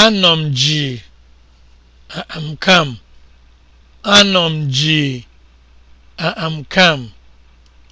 Anọ m ji I'm calm. Anọ m ji I'm calm.